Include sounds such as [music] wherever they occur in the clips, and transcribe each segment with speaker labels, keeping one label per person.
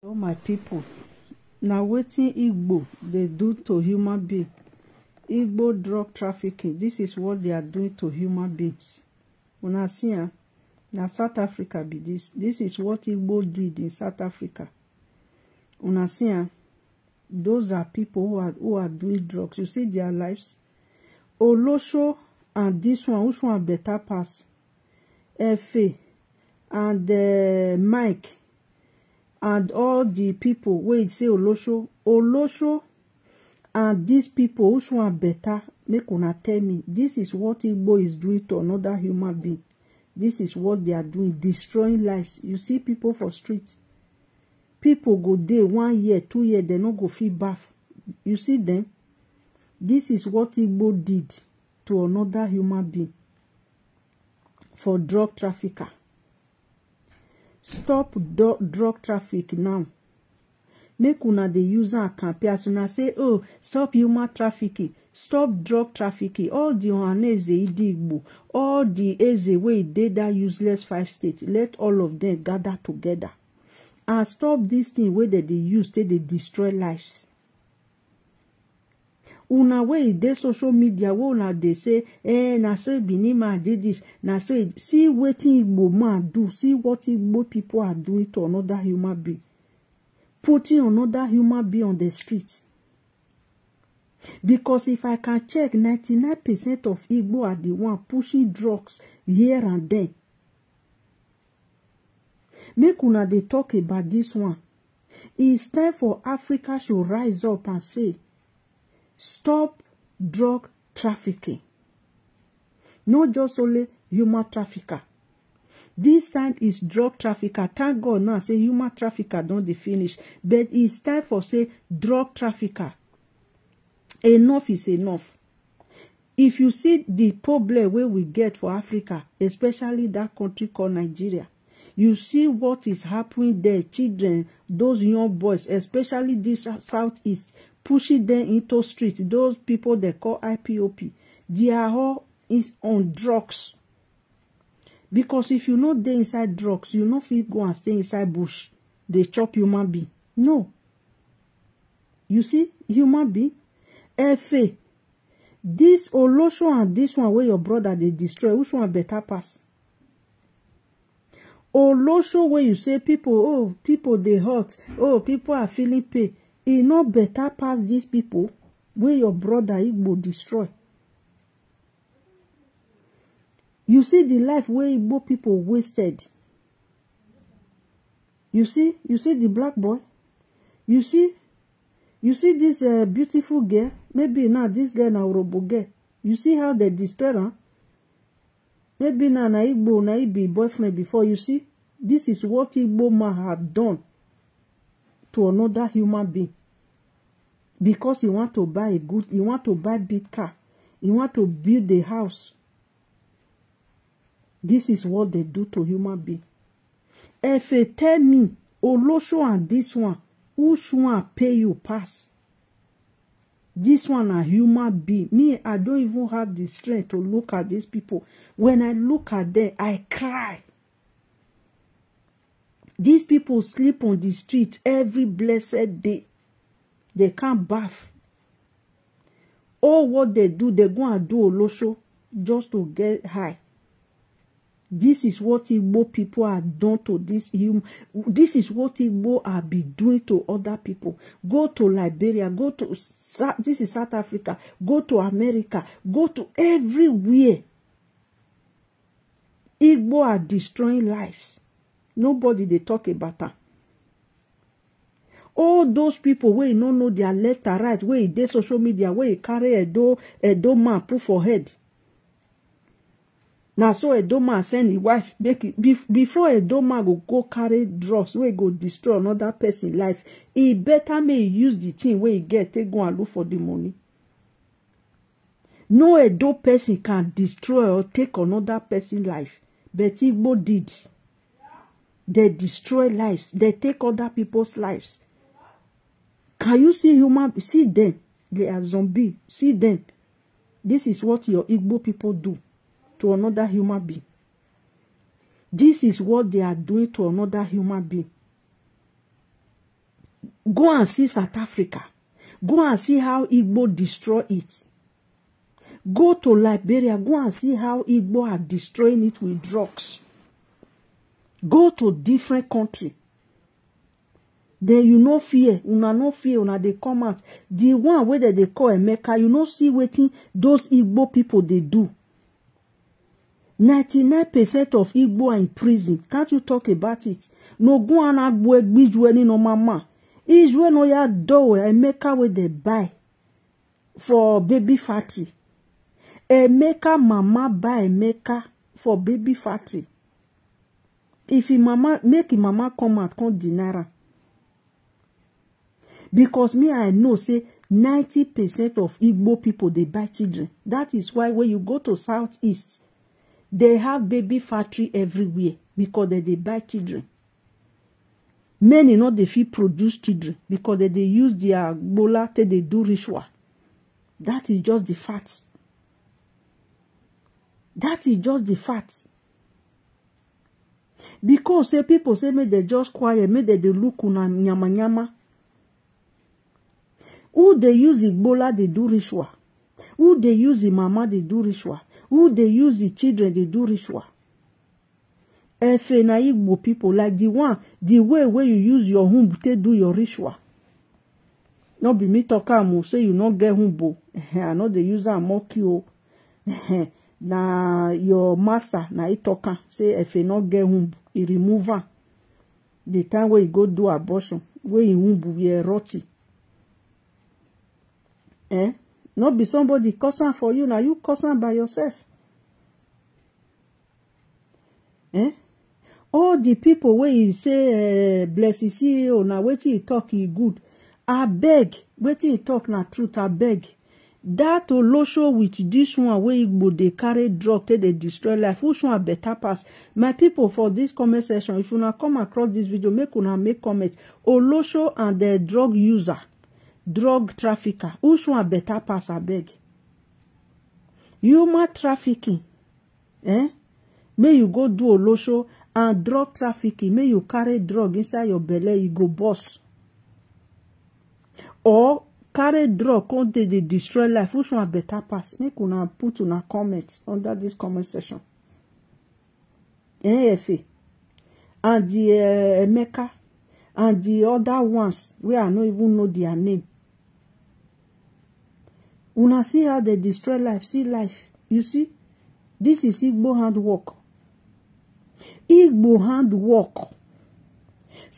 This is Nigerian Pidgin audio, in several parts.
Speaker 1: Hello my pipu, na wetin Igbo dey do to human being. Igbo drug trafficking, this is what they are doing to human beings. Una see am, ah, na South Africa be this. This is what Igbo did in South Africa. Una see am, ah, those are people who are, who are doing drugs. You see their lives? Olosho and this one, which one better pass? Efe and uh, Mike and all the people wey e say olosho olosho and dis people which one better make una tell me this is what igbo is doing to another human being this is what they are doing destroying lives you see people for street people go dey one year two year dem no go fit baff you see dem this is what igbo did to another human being for drug trafficker stop drug traffic now make una the use am campaign as una say oh stop human trafficking stop drug trafficking all the ohaneze idi igbo all the eze wey dey dat useless five states let all of them gather together and stop this thing where they dey use they dey destroy lives una wey dey social media wey una dey say eh na so benin man do this na so e see wetin igbo man do see what igbo people are doing to another human being putting another human being on the street because if i can check ninety nine percent of igbo are the one pushing drugs here and there make una dey talk about this one it's time for africa should rise up and say Stop drug trafficking. Not just only human trafficker. This time is drug trafficker. Thank God now, say human trafficker don't dey finish. But it's time for say drug trafficker. Enough is enough. If you see the problem where we get for Africa, especially that country called Nigeria, you see what is happening there children those young boys especially this southeast pushing them into street those people they call IPOP they are all is on drugs because if you no dey inside drugs you no fit go and stay inside bush They chop human being no you see human being efe this oloso and this one where your brother they destroy which one better pass oloso where you say people oh people they hurt oh people are feeling pain e no better pass these people. wey your broda igbo destroy you see the life wey igbo people wasted you see you see the black boy you see you see dis uh, beautiful girl maybe now this girl na orobo girl you see how they destroy am maybe na na igbo na e be boyfriend before you see this is what igbo man have done to another human being because he want to buy a good he want to buy big car he want to build a house this is what they do to human being If efe tell me olosho and this one which one pay you pass this one a human being me i don't even have the strength to look at these people when i look at them i cry These people sleep on the street every blessed day. They can't bath. All what they do, they go and do olosho just to get high. This is what Igbo people are done to this human. This is what Igbo are be doing to other people. Go to Liberia, go to this is South Africa, go to America, go to everywhere. Igbo are destroying lives nobody they talk about am all those people where wey don't know dia letter right where e dey social media where e carry a do a do man put for head na so do man send him wife make before do man go go carry drugs wey go destroy another pesin life e He better may use the thing where he get take go and look for the money no a do person can destroy or take another pesin life but igbo did They destroy lives. They take other people's lives. Can you see human? See them. They are zombie. See them. This is what your Igbo people do to another human being. This is what they are doing to another human being. Go and see South Africa. Go and see how Igbo destroy it. Go to Liberia. Go and see how Igbo are destroying it with drugs go to different country Then you no fear una no fear una dey come out The one wey dem dey call emeka you no see wetin those igbo people. dey do ninety-nine percent of igbo are in prison can't you talk about it No go n'ogun anagbo egbijue no mama israel no ya dọwọ emeka wey dey buy for baby factory emeka mama buy emeka for baby factory if he mama make him mama come out come deny am because me i know say ninety percent of igbo people dey buy children that is why when you go to southeast they have baby factory everywhere because they dey buy children many no dey fit produce children because they dey use their gbola take dey do ritual that is just the fact that is just the fact because say people say make they just quiet make they dey look una nyama nyama who they use igbola they do ritual who they use the mama they do ritual who they use the children they do ritual efe na igbo people like the one the way where you use your home to do your ritual no be me talk am o say you not get womb [laughs] i know they use a mock you [laughs] na your master na he tok am say efe no get womb he remove am the time wey he go do abortion wey im e womb were rotty eh no be somebody cause am for you na you cause am by yourself eh all the people wey he say eh, bless e see o na wetin he talk he good abeg wetin he talk na truth abeg That olosho with this one wey igbo dey carry drug take dey destroy life which one better pass my people for this comment section if una come across this video make una make comment olosho and the drug user drug trafficker which one better pass abeg human trafficking eh May you go do olosho and drug trafficking May you carry drug inside your belle you go boss or carry drug come dey dey destroy life which one better pass make una put una comment under this comment section nfa and the uh, emeka and the other ones wey i no even know their name una see how they destroy life see life you see This is igbo hand work. igbo hand work.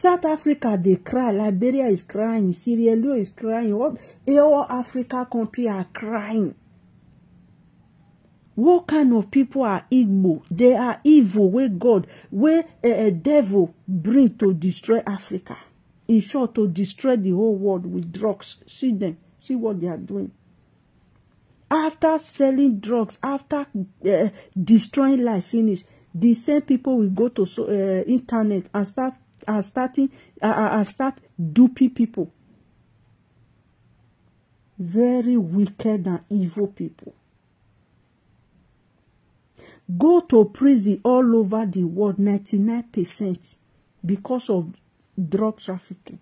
Speaker 1: South Africa, they cry. Liberia is crying. Sierra Leone is crying. All, all Africa countries are crying. What kind of people are Igbo? They are evil, where God, where a, eh, eh, devil bring to destroy Africa. In short, to destroy the whole world with drugs. See them. See what they are doing. After selling drugs, after uh, destroying life, finish, the same people will go to so, uh, internet and start are starting are, are start duping people. Very wicked and evil people. Go to prison all over the world, 99% because of drug trafficking.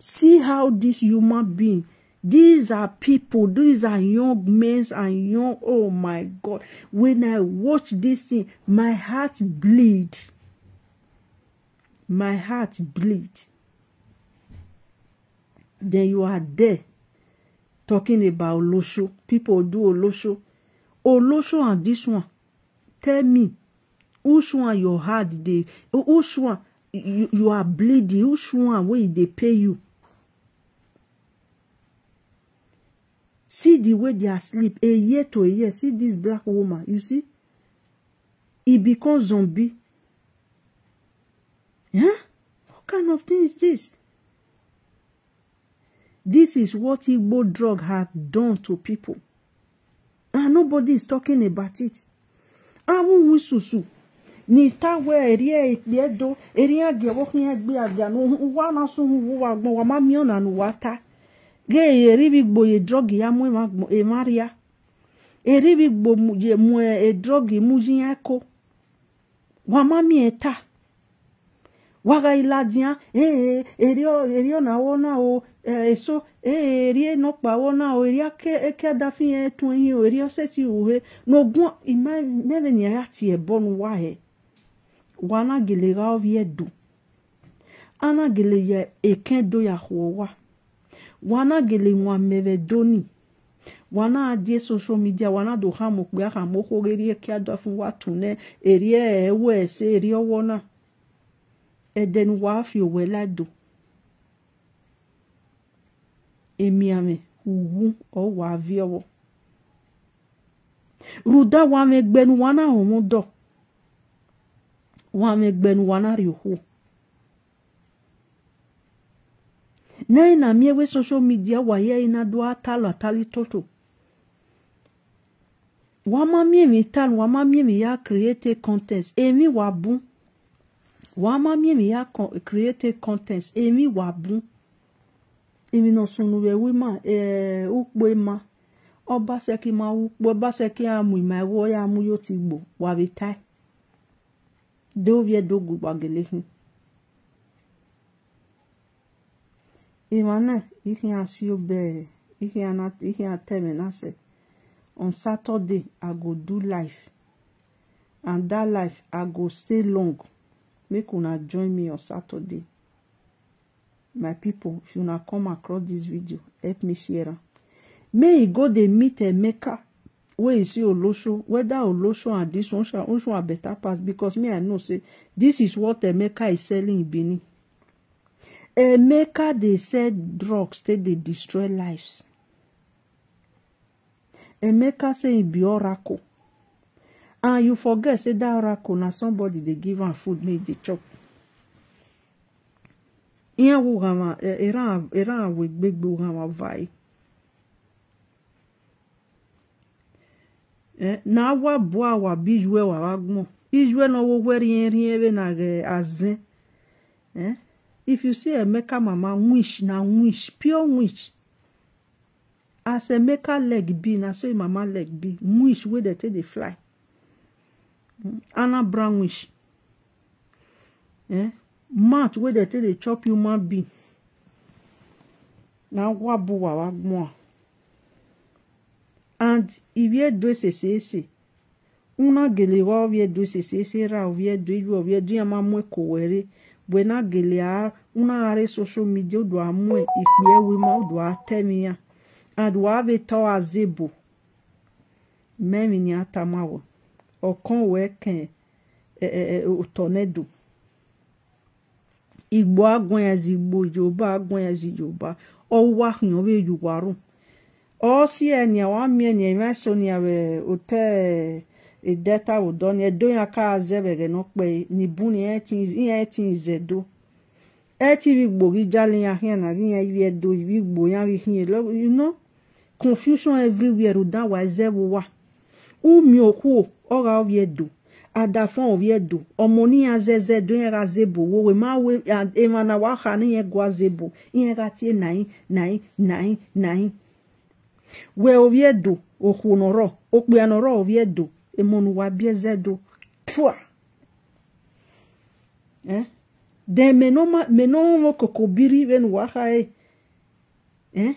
Speaker 1: See how this human being these are people, these are young men and young, oh my God. When I watch this thing, my heart bleed. my heart bleed then you are there talking about olosho people do olosho olosho and this one tell me which one your heart They which one you, you are bleeding which one wey they e pay you see the way they are sleep a year to a year see this black woman you see he becomes zombie Huh? What kind of thing is this? This is what Igbo drug have done to people. And nobody is talking about it. Awụnwụ susu n'ita wee rie ekpe e edo eri e aga nwoke ihe gbe aga n'ụwa na-asụ ụwa agbọwa mamio na n'ụwa taa ga-eribigbo edrogi ya mụ e ya eribigbo mụ edrogi mụ ji ya ko wamamie taa waga wakailadzia ee eh, eh, erio erio na nawona o eh, eso ee erie nokpawona o eria ke ekeadafi etuehi o erio seti uhe nogun imevenia ya tie wa wahe wana gele ga ovie du ana gele ye eken do ya huowa wana gele nwa meve doni wana adie social media wana do hamu kpe ahamu hogerie keadafi watune erie ewe ese erie wona ɛdɛn waafio wɛla do emiame huhu ɔ waaviɔwɔ ruda waame gbɛnu wana ɔmo dɔ waame gbɛnu wana riho nɛɛ na miewe social media wayɛ ina do atalo atali toto wama miemi talo wama miemi ya create contest emi wa bun wama mimi ya con create contents emi wabu emi no sunuwe wima eh ukpo ma ọba sẹki ma ukpo ọba sẹki amu ima ẹwọ ya amu yo ti gbo wabi tai dovie dogu gbagele hin imane ihe asi obere ihe ateme na se on saturday i go do life and that life i go stay long make una join me on saturday my people. if una come across this video help me share am may e go dey meet emeka wey e see olosho whether olosho and this one osho are better pass because me i know say this is what emeka is selling in benin emeka dey sell drugs take dey destroy lives emeka say e be oracle and ah, you forget say dey oracle na somebody dey give am food make e dey chop eya awo hama era eh, awo gbegbe ohama ɔva yi ɛna eh, awa bo awa bi ijo ɛwa agumɔ ijo ɛna ɔwɔwɛ rie rie ɛna ɛ aze eh, ɛ if you see emeka mama wish na wish pure wish as emeka leg bi na sayi e mama leg bi wish wey dey take dey fly. anna brownish eh mouth wey dem take dey chop human being na wabuwa wagbuwa and iwiedo e esese una gele wa oviedo esese ra oviedo iru oviedo ya ma mwe kowere buena gele a una are social media odo amue ikpe ewe ma odo atemi ya and wa ave to azebo memi ni atamawo ọkan wee kan e, e, tornado igbo agwan yazi igbo yoruba agwan yazi yoruba ọwụwa hụnyọ wee yuwarụ ọsi enya wami enya ime so nia awe ote edeta ụdọ ni edo ya ka azebere n'okpe n'ibu ni ihe eti nzedo eti igbo gị jali ya hịa na gị ya iwe edo igbo ya gị hịa you know confusion everywhere ụda wa ezebuwa. umiokuo ora oviedu adafon oviedu omoni azeze do yen razebo wo we ma we emana wa kha ni yen guazebo yen ga nai nai nai nai we oviedu okunoro okpianoro oviedu emonu wa biezedo pua eh de menoma menomo wo kokobiri ven wa kha eh e?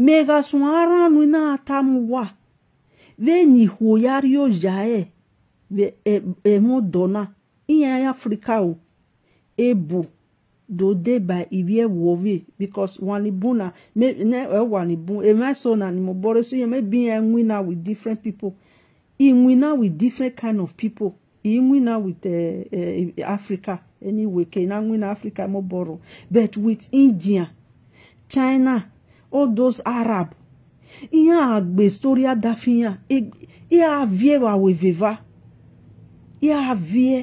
Speaker 1: megasũn aranu na atamwa venyihuo yario yae emodona iyan africa o ebo dode by ivie wove because wanibuna me ne e wanibun emeso na ni mo bore so yeme bi enwina with different people inwina with different kind of people inwina with uh, e, uh, e, africa anyway ke na nwina africa mo boro but with india china all those Arab ihe a gba historia dafiya ihe a vie wa weveva ihe a